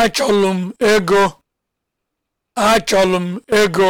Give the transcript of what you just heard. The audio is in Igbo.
Achọlụ m ego! Achọlụ m ego!